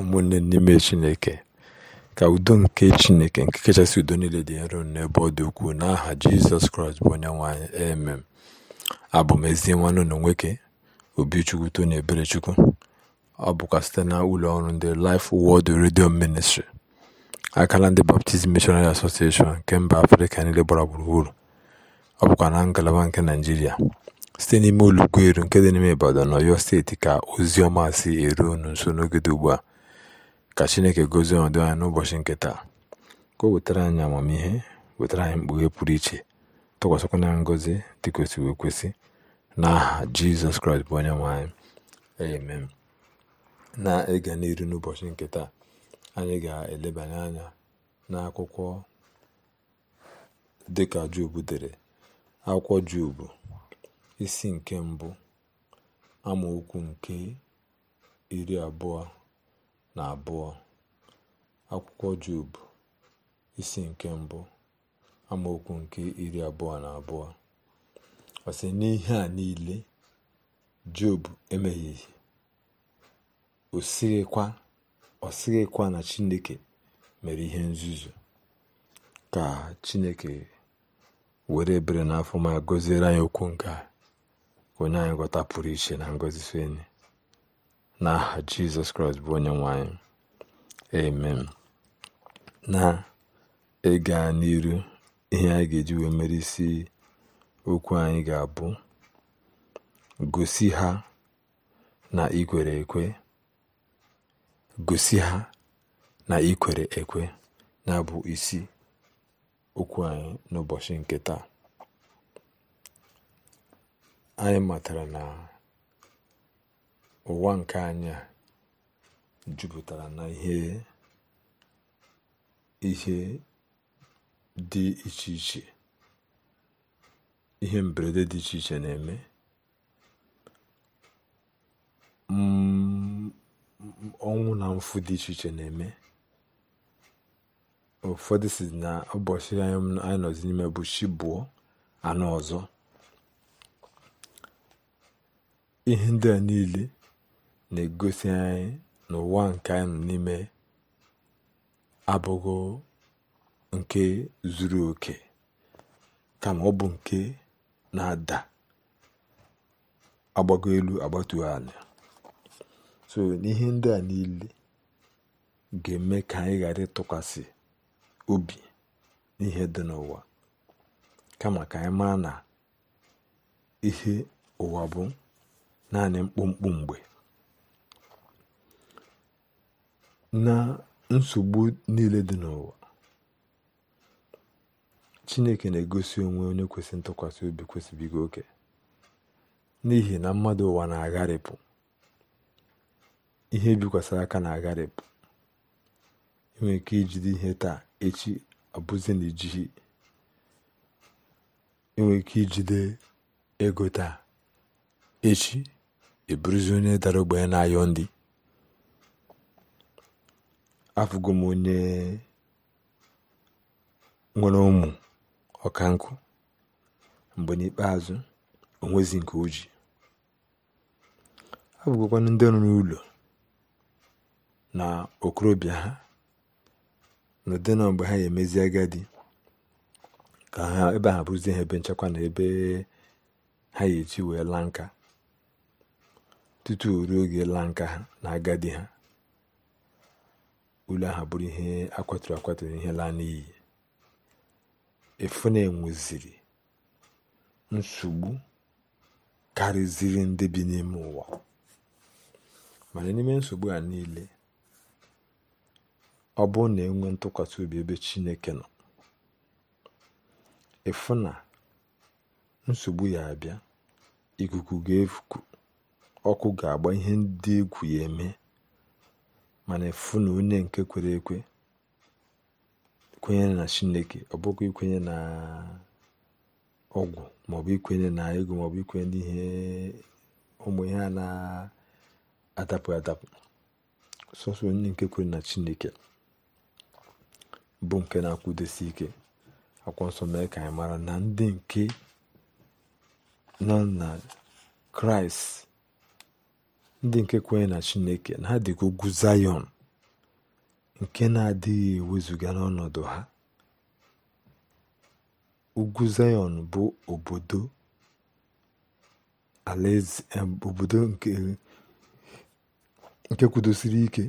ụmụnne n'ime chineke ka udo nke chineke nke kachasị udo niile dị nro n'ebe ọ dị ukwuu n'aha jizọs kraịst bụ onye nwanyị emem abụ m ezi na nwoke obichukwu na eberechukwu ọ bụkwa site na ụlọ ọrụ ndị Life Word redio ministri akala ndị Baptist Missionary Association nke mba afrịka niile gbara gburugburu ọ bụkwa na ngalaba nke naijiria site n'ime ụlọugweru nke dị n'ime Ibadan na Ọyọ steeti ka ozi ọma si eru unu nso n'oge dị ugbu a Ka Chineke gozie ọdụ anyị n'ụbọchị nke taa, ka o wetara anyị amamihe, wetara anyị mkpughe pụrụ iche, tụkwasịkwa na ngọzi dị wee kwesị n'aha Jizọs Kraịst bụ onye nwe anyị. Amen. Na-ịga n'iru n'ụbọchị nke taa, anyị ga-elebanye anya n'akwụkwọ dịka Job dere, akwụkwọ Job isi nke mbụ amaokwu nke iri abụọ na abụọ akwụkwọ Job isi nke mbụ amaokwu nke iri abụọ na abụọ ọsị n'ihe a niile Job emehieghị o sighịkwa na Chineke mere ihe nzuzu ka Chineke were bere na ma gọziere anyị okwu nke a onye anyị ghọta pụrụ iche na ngọzi n'aha jizọs kraịst bụ onye nwanyị amen na ịga n'iru ihe anyị ga-eji wee mere isi okwu anyị ga-abụ gosi ha na ikwere ekwe gosi ha na ikwere ekwe na-abụ isi okwu anyị n'ụbọchị nke taa anyị matara na ụwa nke anya juputara jupụtara na ihe ihe dị iche iche ihe mberede dị iche iche na-eme mm, ọnwụ na mfu dị iche iche na-eme ụfọdụ si na ụbọchị anyị nọzi n'ime bụ chi bụọ anọ ọzọ ihe ndị a niile na-egosi anyị na ụwa nke anyị n'ime abụghị nke zuru oke kama ọ bụ nke na-ada agbago elu agbatu ala so n'ihe ndị a niile ga-eme ka anyị ghara ịtụkwasị obi n'ihe dị n'ụwa kama ka anyị maa na ihe ụwa bụ naanị mkpụmkpụ mgbe na nsogbu niile dị n'ụwa chineke na-egosi onwe onye kwesị ntụkwasị obi kwesịbigo oke n'ihi na mmadụ ụwa na-agharịpụ ihe bikwasịrị aka na-agharịpụ enwere ike ijide ihe taa echi abụzi na ijighi enwere ike ijide ego taa echi eburuzi onye dara ogbenye na-ayọ ndị afụgo m onye nwere ụmụ ọkankụ mgbe n'ikpeazụ onwezi nke oji abụgokwanụ ndị rụrụ ụlọ na okorobịa ha n'ụdị na mgbe ha ga-emezi agadi ka ha ebe ha bụzie ha ebe nchekwa na ebe ha ga-eti wee laa nka tutu ruo oge laa nka ha na agadi ha ulu ahụ bụrụ ihe akwaturu akwaturu ihe laa n'iyi na enweziri nsogbu karịziri ndị bi n'ime ụwa mana n'ime nsogbu a niile ọ bụrụ na enwe ntụkwasị obi ebe chineke nọ efu na nsogbu ya abịa ikuku ga-efuku ọkụ ga-agba ihe ndị egwu ya eme mana efu na onye nke kwere ekwe kwenyere na chineke ọ bụkwa ikwenye na ọgwụ maọbụ ikwenye na ego maọbụ ikwenye n'ihe ụmụ ihe a na-adapụ adapụ sọsọ onye nke kwere na chineke bụ nke na-akwụdosi ike akwọ nsọ mee ka anyị mara na ndị nke nọ na kraịst ndị nke kwenye na chineke na adịghị ugwu zayọn nke na-adịghị ewezuga n'ọnọdụ ha ugwu Zayon bụ obodo nke kwudosiri ike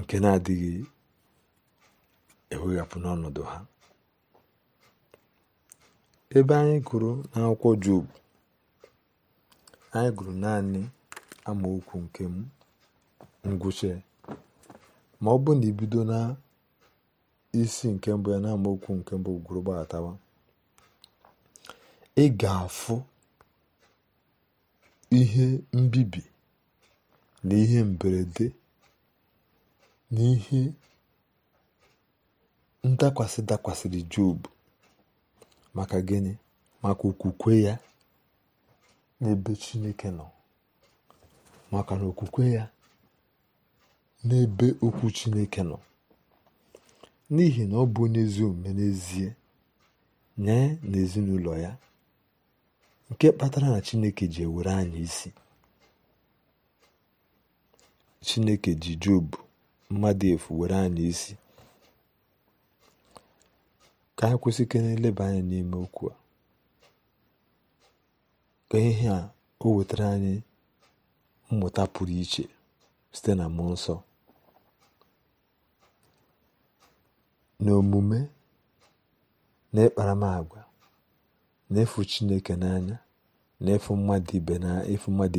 nke na-adịghị eweghapụ n'ọnọdụ ha ebe anyị kụrụ n'akwụkwọ Job anyị gụrụ naanị amaokwu nke ngwụcha ma ọ bụrụ na ibido na isi nke mbụ ya na amaokwu nke mbụ gwụrụ gbatawa ị ga-afụ ihe mbibi na ihe mberede na ihe ndakwasị dakwasịrị Job maka gịnị maka okwukwe ya n'ebe chineke nọ maka na okwukwe ya n'ebe okwu chineke nọ n'ihi na ọ bụ onye ezi omume n'ezie nye na ezinụlọ ya nke kpatara na chineke ji ewere anyị isi chineke ji jobu mmadụ efu were anyị isi ka anyị kwụsị ike na-eleba anya n'ime okwu a ka ihe a o wetara anyị mmụta pụrụ iche site na mmụọ nsọ n'omume na ịkparamagwa na-efu chineke n'anya na-efu mmadụ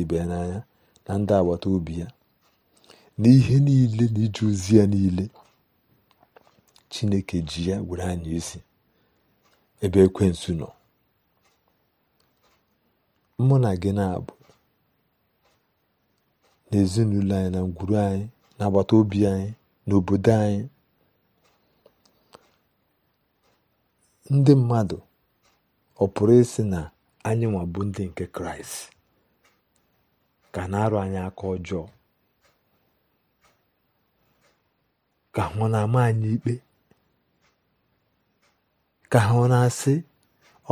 ibe ya n'anya na ndị agbata obi ya na ihe niile na ije ozi ya niile chineke ji ya were anyị isi ebe ekwensu nọ mụ na gị na-abụ n'ezinụlọ anyị na ngwuru anyị na agbata obi anyị n'obodo anyị ndị mmadụ ọ pụrụ ịsị na anyị nwabụ ndị nke kraịst ka na-arụ anyị aka ọjọọ ka ha na-ama anyị ikpe ka ha na-asị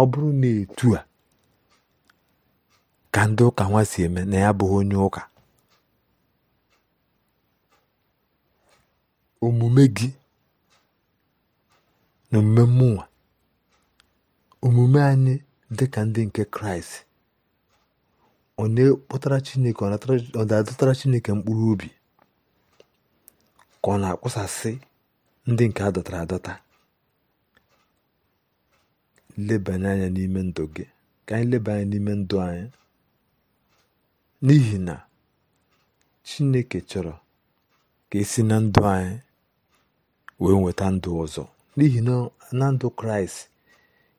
ọ bụrụ na etu a ka ndị ụka nwa si eme na ya bụghị onye ụka omume gị na omume mmụnwa omume anyị dị ka ndị nke kraịst ọ na-ekpọtara chineke ọ na-adọtara chineke mkpụrụ obi ka ọ na-akwụsasị ndị nke adọtara adọta lebanye anya n'ime ndụ gị ka anyị leba anya n'ime ndụ anyị n'ihi na Chineke chọrọ ka esi na ndụ anyị wee nweta ndụ ọzọ n'ihi na na ndụ Kraịst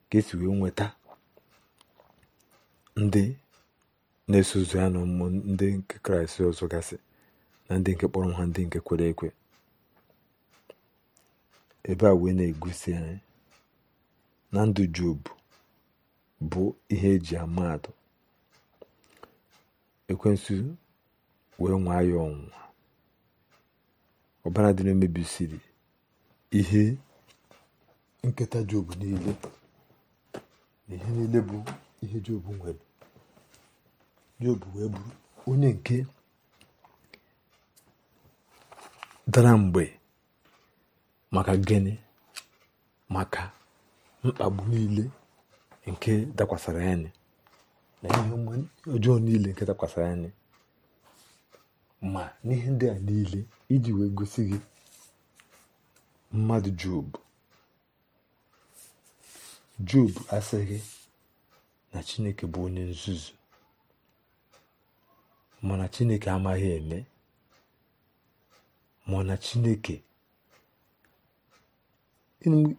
ka esi wee nweta ndị na-eso ụzọ ya na ụmụ ndị nke Kraịst ọzọ gasị na ndị nke kpọrọ ha ndị nke kwere ekwe ebe a wee na-egosi anyị na ndụ Job bụ ihe eji amadụ ekwensu wee nwaa ya ọnwụnwa ọbara dị na-emebisiri ihe nketa job niile na ihe niile bụ ihe job nwere job wee bụ onye nke dara mgbe maka gịnị maka mkpagbu niile nke dakwasara anyị na ihe ọjọọ niile nke dakwasara anyị ma n'ihe ndị a niile iji wee gosi gị mmadụ jobu jobu asịghị na chineke bụ onye nzuzu mana chineke amaghị eme mana chineke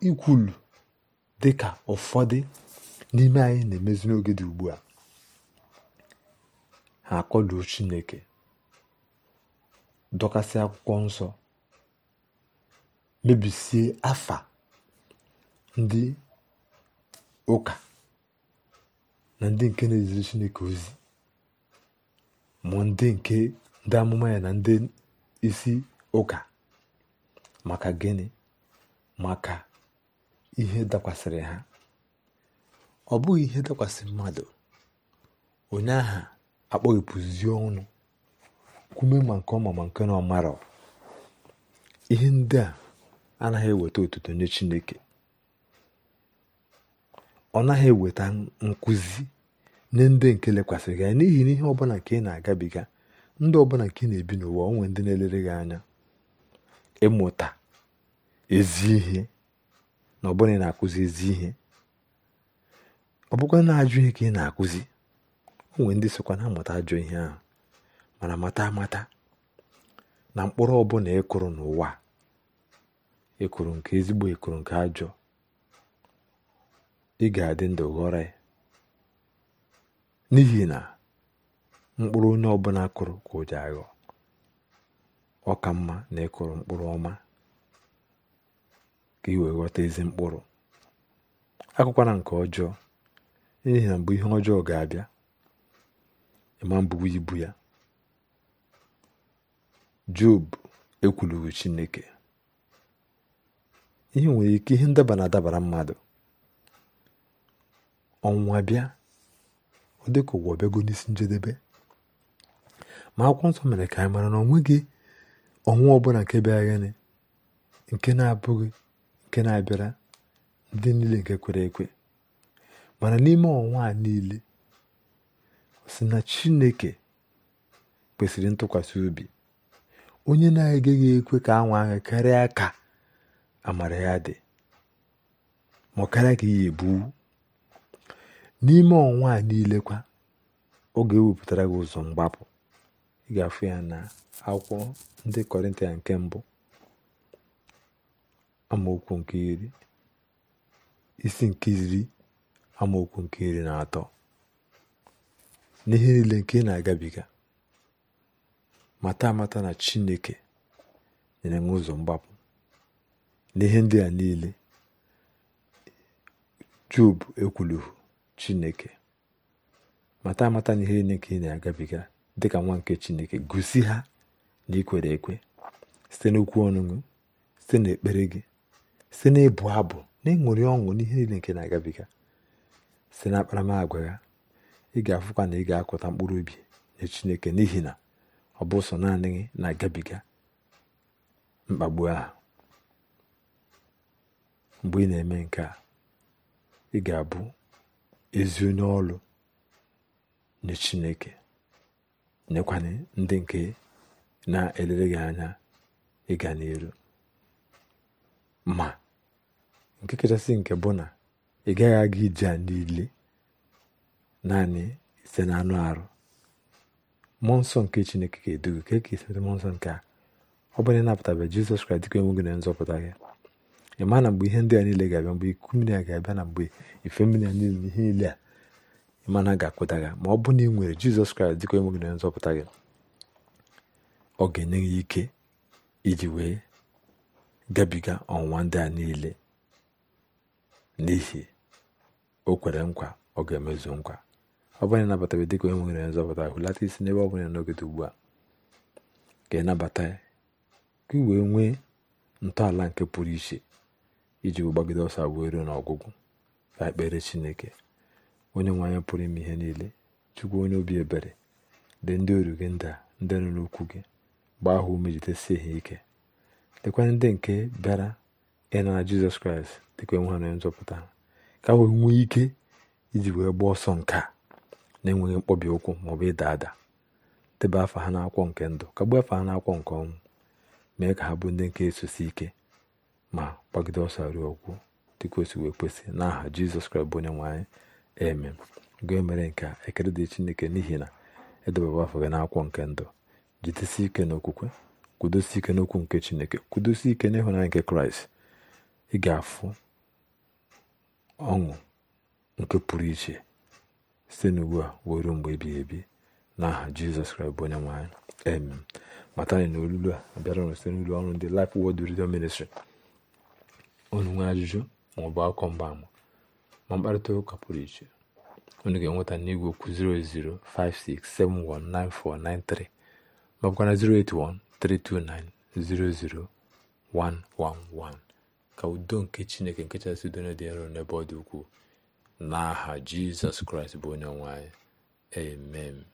ikwulu ka ụfọdụ n'ime anyị na-emezi n'oge dị ugbu a ha akọduo Chineke dọkasị akwụkwọ nsọ mebisie afa ndị ụka na ndị nke na-eziri Chineke ozi ma ndị nke ndị amụma ya na ndị isi ụka maka gịnị maka ihe dakwasịrị ha ọ bụghị ihe dakwasị mmadụ onye aha akpọghepụzie ọnụ kwume ma nke ọma ma nke na ọmara ihe ndị a anaghị eweta otuto nye chineke ọ naghị eweta nkụzi nye ndị nke lekwasịrị anya n'ihi na ihe ọbụla nke ị na-agabiga ndị ọbụla nke ị na-ebi n'ụwa onwe ndị na-elere gị anya ịmụta ezi ihe na ọbụla ị na-akụzi ezi ihe ọ bụkwa na ajụ ihe ka ị na-akụzi o ndị sokwa na amụta ajọ ihe ahụ mana mata mata na mkpụrụ ọbụla ịkụrụ e n'ụwa ịkụrụ e nke ezigbo ịkụrụ e nke ajọ ị ga-adị ndụ ghọrọ n'ihi na mkpụrụ onye ọbụla kụrụ ka o ji aghọ ọ mma na ịkụrụ mkpụrụ ọma ka ị ghọta ezi mkpụrụ akụkwara nke ọjọọ n'ihi na mgbe ihe ọjọọ ga-abịa ịma mbụwa ibu ya job ekwulughị chineke ihe nwere ike ihe ndaba na-adabara mmadụ ọnwụwa bịa ọ dị ka ụwa ọbịago n'isi njedebe ma akwụkwọ nsọ mere ka anyị mara na onweghị ọnwụ ọbụla nke bịara gịnị nke na-abụghị nke na-abịara ndị niile nke kwere ekwe mana n'ime ọnwa a niile sị na chineke kwesịrị ntụkwasị obi onye na-agaghị ekwe ka anwa ahụ karịa ka amara ya dị ma karịa ka iye ebu n'ime ọnwa a niile kwa oge ewepụtara gị ụzọ mgbapụ ị ga-afụ ya na akwụkwọ ndị kọrịntịa nke mbụ amaokwu nke iri isi nke iri amaokwu nke iri na atọ n'ihe niile nke ị na-agabiga mata amata na chineke nyere nwe ụzọ mgbapụ n'ihe ndị a niile jub ekwuluhu chineke mata amata na ihe niile nke ị na-agabiga dị ka nwa nke chineke gosi ha na ikwere ekwe site n'okwu ọṅụṅụ, site n'ekpere gị site n'ịbụ abụ na ịṅụrị ọṅụ n'ihe niile nke na-agabiga site na akparamagwa ya ị ga-afụkwa na ị ga-akụta mkpụrụ obi nye chineke n'ihi na ọ bụ ụsọ naanị na-agabiga mkpagbu ahụ mgbe ị na-eme nke a ị ga-abụ ezi onye ọrụ nye chineke nyekwanye ndị nke na-elere gị anya ịga n'elu ma nke kachasị nke bụ na ị gaghị aga ije a niile naanị site na anụ arụ mmụọ nsọ nke chineke ga-edu gị ka eke mmụọ nsọ nke a ọ bụrụ na jizọs kraịst dịka enwe gị na nzọpụta gị ị na mgbe ihe ndị a niile ga-abịa mgbe iku mmiri a ga-abịa na mgbe ife mmiri a niile ihe niile a ịmana ga-akpụta gị ma ọ bụ na ị nwere jizọs kraịst dịka enwe gị na nzọpụta gị ọ ga-enye gị ike iji wee gabiga ọnwụnwa ndị a niile n'ihi o kwere nkwa ọ ga-emezu nkwa ọ bụla ịnabatabe dịka onye nwere nzọpụta hụlata isi n'ebe ọ bụla ugbu a ka ịnabata ya ka ị wee nwee ntọala nke pụrụ iche iji gbagide ọsọ wee ruo n'ọgwụgwụ ka ekpere chineke onye nwe anyị pụrụ ime ihe niile chukwu onye obi ebere dị ndị oru gị nda ndị nọ n'okwu gị gbaa ha ume ha ike lekwana ndị nke bịara ịnara jizọs kraịst dịka enwe ha na nzọpụta ka wee nwee ike iji wee gbaa ọsọ nke a na-enweghị mkpọbi ụkwụ maọbụ ịda ada debe afọ ha n'akwụkwọ nke ndụ kagbuo afọ ha n'akwụkwọ nke ọnwụ mee ka ha bụ ndị nke esosi ike ma gbagide ọsọ ruo ọgwụ dịka osi wee kwesị n'aha jizọs kraịst bụ onye nwe anyị eme gee mere nke a ekele dị chineke n'ihi na edebaba afọ gị n'akwụkwọ nke ndụ jidesi ike n'okwukwe kwudosi ike n'okwu nke chineke kwudosi ike n'ịhụnanya nke kraịst ị ga-afụ ọṅụ nke pụrụ iche site n'ugbu a wee ruo mgbe ebighị ebi n'aha aha jizọs kraịst bụ onye nwaanyị amen matani na olulu a abịara ụnụ site n'ụlọ ọrụ ndị Life Word Radio Ministry unu nwee ajụjụ maọbụ akụkọ mgbaama ma mkparịta ụka pụrụ iche onu ga-enweta n'igwe okwu 00567199493 maọbụkwana 08132900111 ka udo nke chineke nke chasị udo dị nro n'ebe ọ dị ukwuu n'aha jizọs kraịst bụ onye nwanyị anyị amen